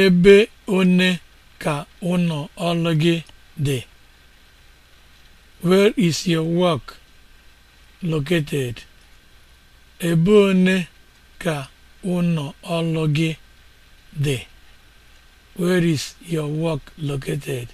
Ebe one ka ụnọ ọlụ gị dị? Where is your work located? gị dị? Where is your work located?